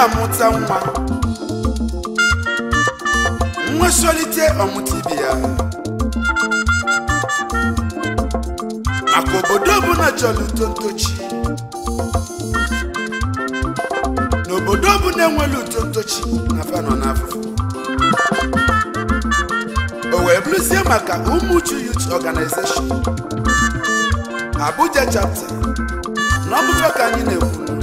na-amụta nwa nwesolite ọmụta ibe ya maka obodo ọbụla chọrọ uto ntochi n'obodo ọbụla na uto ntochi na fanọ n'afọ o wee bụrụzie maka Umuchu Youth Organization Abuja chapter na ọbụfa ka anyị na-ekwu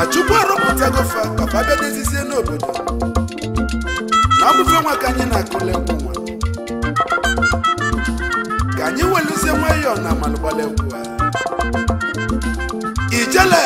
na chukwu arụpụtago fa papa bịa dezizie n'obodo na ọbụfe nwa ka anyị na-akụle nkwụ nwa ka anyị welụzie ọ na malụgbalị egwu ijele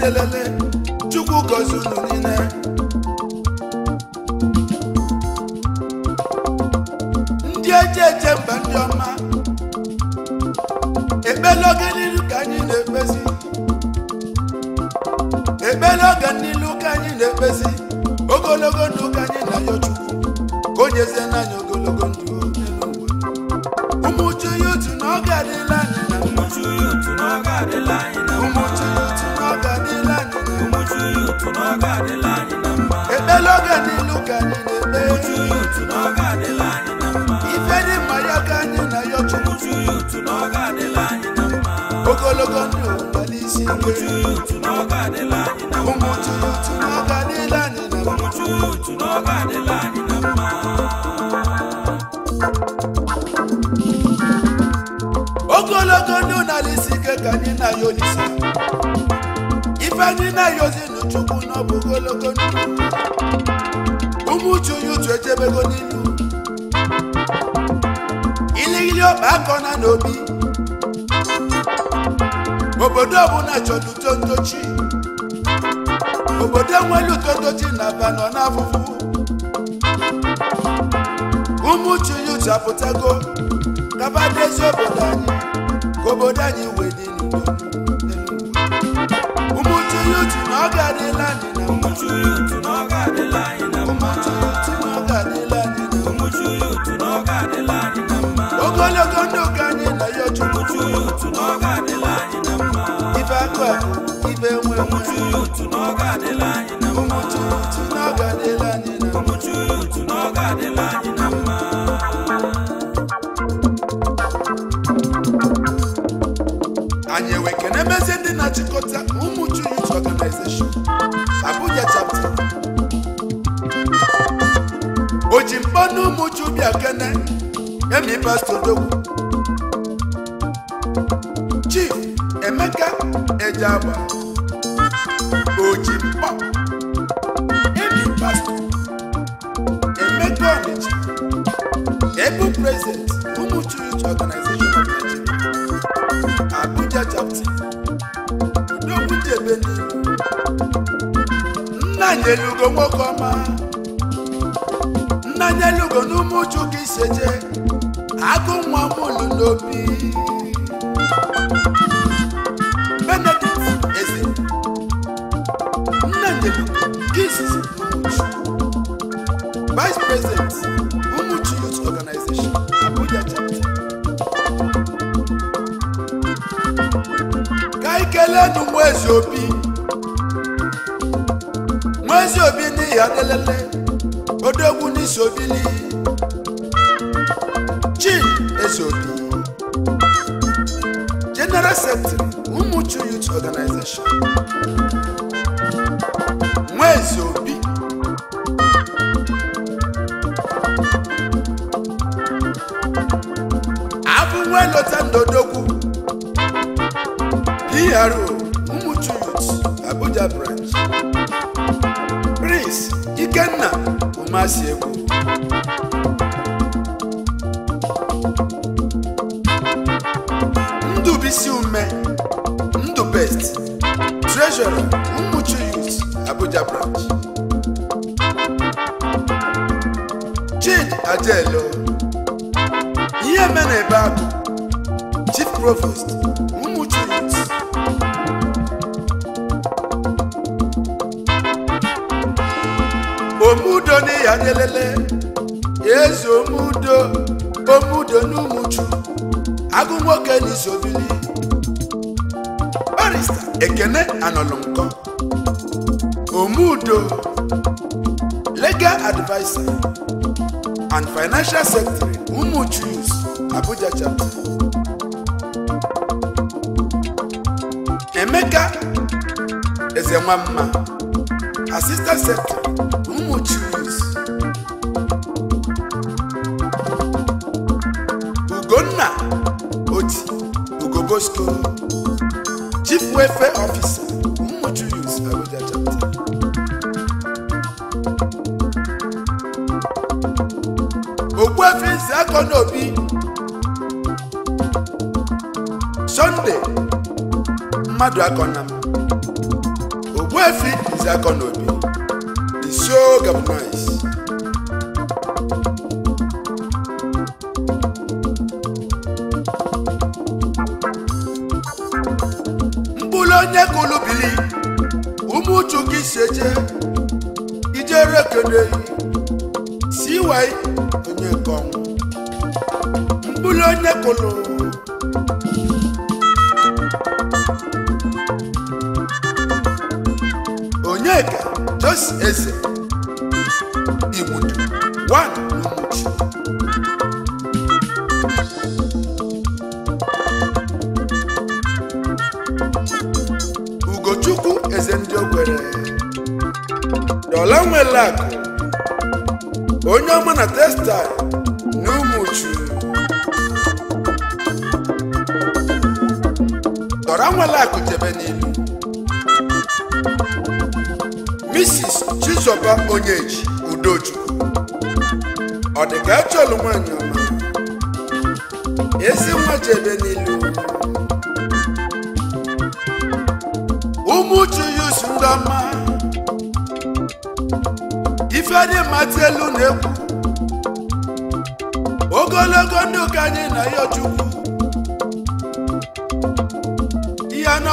na-elele chukwu gọzie unu niile ndị eje eje mba ndị ọma ekpela oge n'ilu ka anyị na-ekpezi ekpela oge n'ilu ka anyị na-ekpezi ogologo ndụ ka anyị na-ayọ chukwu ka o nyezie n'anya ogologo ndụ mayaka nene be Uchu yutu noga de la nina ma Ifedi mayaka nina yotu Uchu yutu noga de la nina ma Ogologo ni umbalisi nge Uchu yutu noga de la nina ma Umuchu yutu noga de la nina ma Umuchu yutu noga de la nina ma Ogologo ni unalisi ke kanina yonisa Ifedi na yozinu chuku echebego n'ilu iligili ọba na n'obi obodo ọbụla chọrọ uto ntochi obodo nwere uto ntochi na aba nọ n'afụfụ ụmụ chinyuche apụtago kaba n'ezi obodo anyị ka obodo anyị wee dị n'udo ụmụ chinyuche na ọ ga-adịla anyị na mma ibe nwe n'oge adịla anyị na mma ụmụchurutu n'oge adịla anyị na mma ụmụchurutu n'oge adịla anyị na mma anyị enwe kene mezie ndị na-achịkọta ụmụchu youth organization Abuja chapter o ji ụmụchu bịa kene emi pastọ dogwu ndị oji emeka ọnịcha ebu prezident ụmụ church organization of Nigeria Abuja chapter udogwu jebe nna nyelugo nwoke ọma iseje agụ Present Mumuchi Youth Organization Abuja Chapter. Ka anyị kelee nụ Nwezi Obi Nwezi Obi n'ihi adelele odogwu n'isi obili Chin Eze General Secretary Mumuchi Youth Organization Ndodogwu PRO Umuchu Youth Abuja branch Prince Ikenna Umasiegwu Ndubisi Ume Ndubest Treasurer Umuchu Youth Abuja branch Chid Adelo ihe mere ebe Chief Provost Mmuchi Omudoni Adelele Eze Omudo Omudo n'Umuchu agụ nwoke n'Izobili Barrister Ekene Anọlụnkọ Omudo Legal adviser and Financial Secretary Umuchu Abuja Chapter Eze Nwamma Assistant Secretary Umu Chiris Ugonna Oti Ugobosko Chief Welfare Officer Umu Chiris Abuja Chapter Ogbuefi Nzeakona Obi Sunday Mmadụakọna m Efik is Akonobi, the show Gabonese. mkpụrụ onye kụlụ bili ụmụ uchu gị si eje ijere Francis Eze Igbudu one Umuchi Ugochukwu Eze ndị kwere Dola nwere akụ onye ọma na textile na Umuchu nwe nwere akụ jebe n'ilu Bishọp Onyeji Udochukwu ọ dị ka achọlụ e nwanyị ọma ezi nwa jebe n'ilu ụmụ uchu yusu ndọma ifedimata elu na-ekwu ogologo ndụ ka anyị na ya chukwu ihe na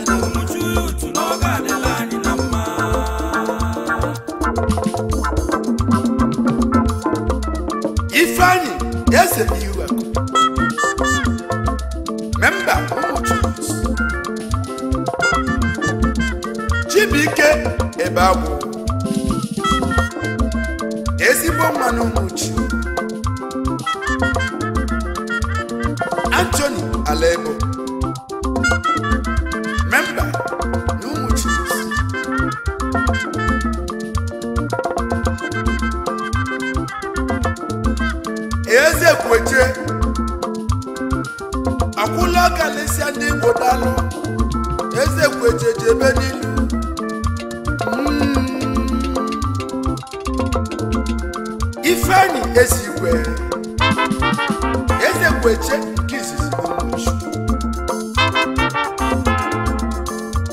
Yes, if you are. Member, Chibike Ebabu. Ezigbo mmanụ nwuchi. Anthony Alego. enyi ezigwe eze gweche ka izizi n'omuju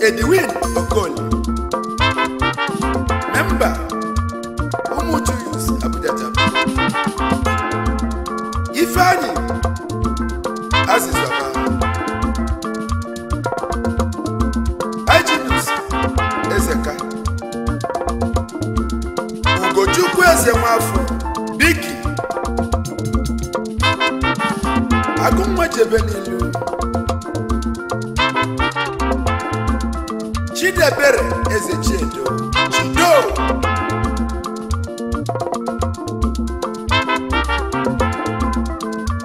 edwin okoli memba ụmụju yus abuja japan ifeanyi azịza agụnwa jebe n'ilu Chidebere eze Chiedo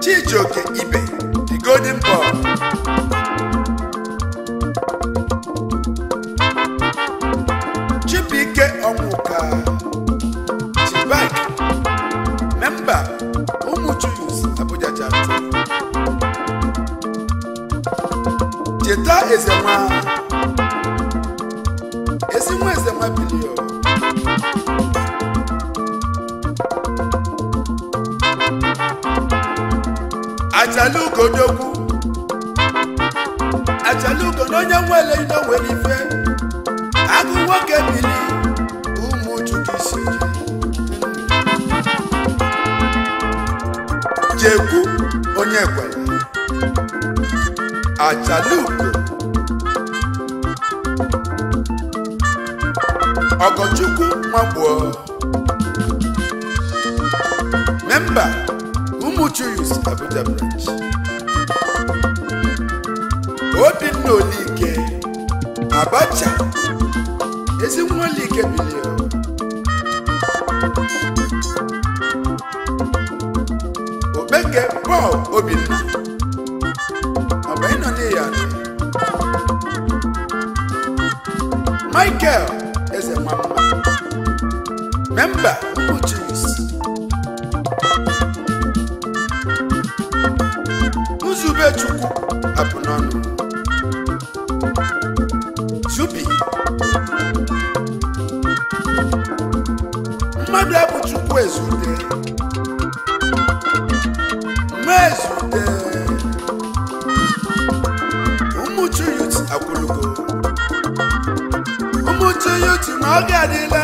Chido ch'ijoke Ibe the golden eze nwa ezi onye nwere nwere ife agụ nwoke ụmụ chukwu isi jekwu onye kwere achalugo Ọgọchukwu Nwagbuo memba Umuchu Youth Abuja branch Obinna Olike Abacha Ezinwa Olike bilio Obenge Paul Obinna ọba Michael remember who oh, Jesus. Nzubechukwu abụ n'ọnụ Zubi mmadụ abụ Chukwu ezute mma ezute ụmụchu yut akwụlugo na ọ ga-adịla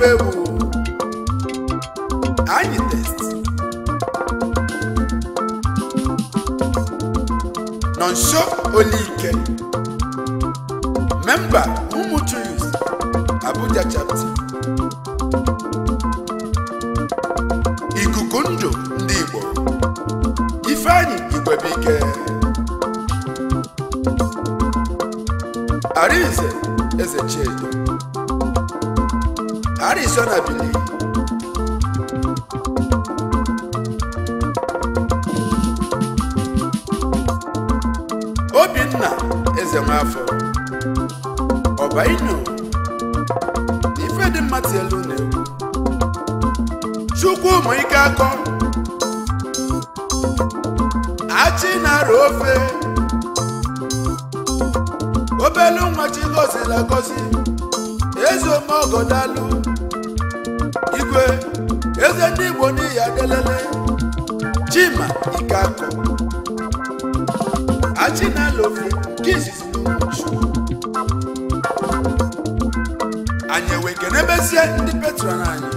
fẹ́wò àyè test. Nonso Olike memba Mumutu Youth Abuja chapter Ikuku Ndụ ndị Igbo Ifeanyi Igwebike Arinze Eze Arizona bili Obinna eze nwafọ ọba inu ife dị mma elu na chukwu ụmụ ike akọ achị na-arụ ofe obelu nwa chi gozi agozi eze ome ọgọdalụ igwe eze ndị igbo n'ihi adelele chima ike akọ achinalofi nke izizi n'uchu anyị ewee kenebezie ndị petron anyị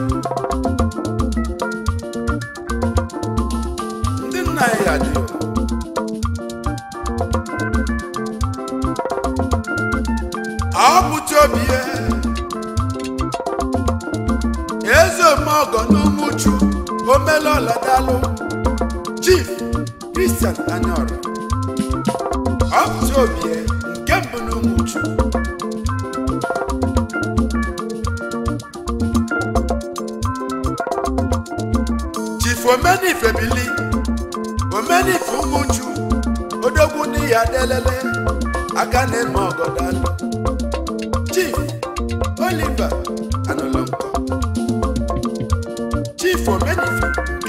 ndị nna anyị ya dị ọ bụcha obi ihe mọgọ n'umuchu omelọla dalụ chief Christian Anyaora ọpụtụ obi nke mbụ n'umuchu chief omenife bili omenife umuchu odogwu ndị ya delele aka na-eme ọgọ chief Oliver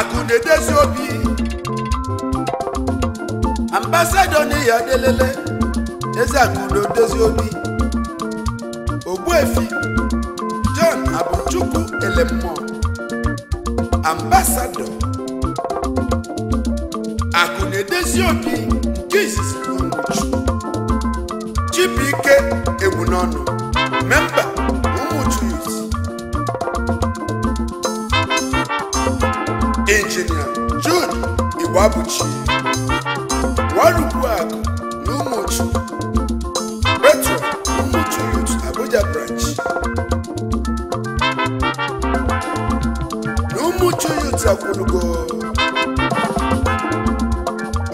akụ na-edezi obi ambasadọ n'ihi eze akụ na obi ogbuefi John Abụchukwu Elemmụọ ambasadọ akụ na obi nke izizi Chibuike Egbunọnụ memba injinia June Igwabuchi Nwarubuakụ na Umuchu Petro Umuchu Youth Abuja branch na Umuchu Youth akwụlugo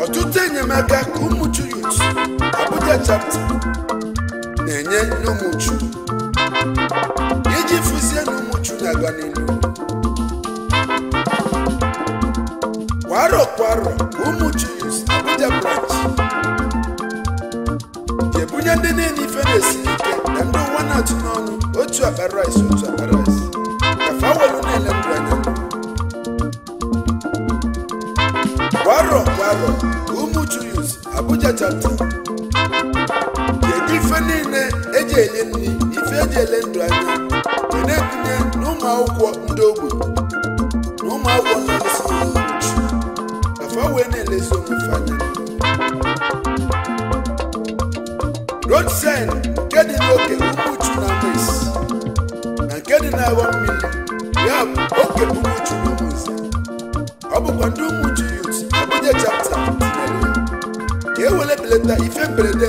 ọtụtụ enyemaka ka Umuchu Youth Abuja chapter na-enye n'Umuchu iji e fụzie na Umuchu na-aga n'ihu kwaro kwaro ụmụ jus abuja branch ebunye ndị niile ife na-esi nke ndụ ụwa na-atụ otu akpa otu akpa rice kafa welu na-ele ndụ anya kwaro kwaro ụmụ jus abuja chapter ga ife niile eji e ele ndụ anya na na ụmụ akwụkwọ ndị bene le somifanya rodsen nke dị n'oke ukwuchu na mes na nke dị n'awa mmiri ya bụ oke ukwuchu na ụmụnze ọ bụkwa ndị umuchu yut abụje chapta tinyere ka e wele belata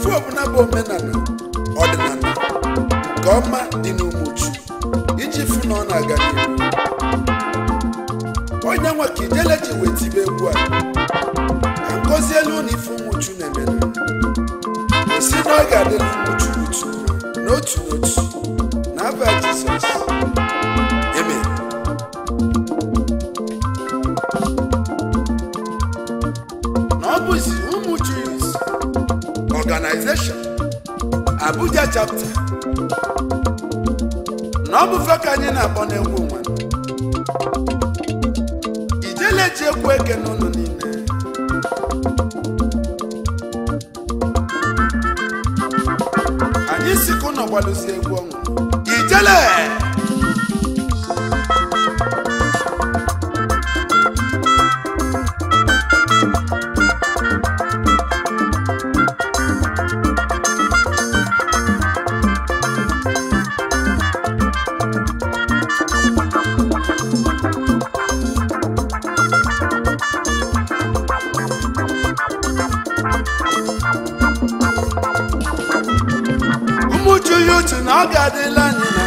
ife ọbụla bụ omenala ọdịnala nke ọma dị n'Umuchu iji fụ na ọ na-aga onye nwa ka ijele ji wee tibe egwu a ka elu na ife Umuchu na isi si na ọ ga-adịla n'otu n'otu Abuja chapta na ọ bụfe ka anyị na-akpọ n'egwu nwa ijele ji ekwu eke n'ụlọ niile anyị sikụ n'ọgbalụsi egwu ọnwụ ijele uche na ọ ga-adịla anyị na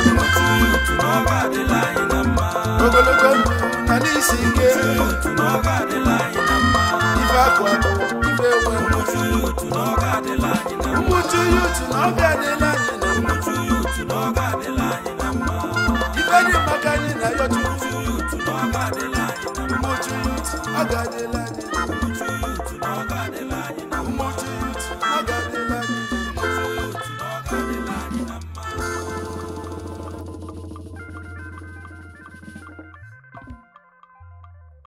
mma ogologo ndụ na n'isi ike ife akwa ife ewe mmuchu ya uchu na ọ ga-adịla anyị na mma ife dị maka anyị na ya uchu mmuchu ya uchu ọ ga-adịla anyị na mma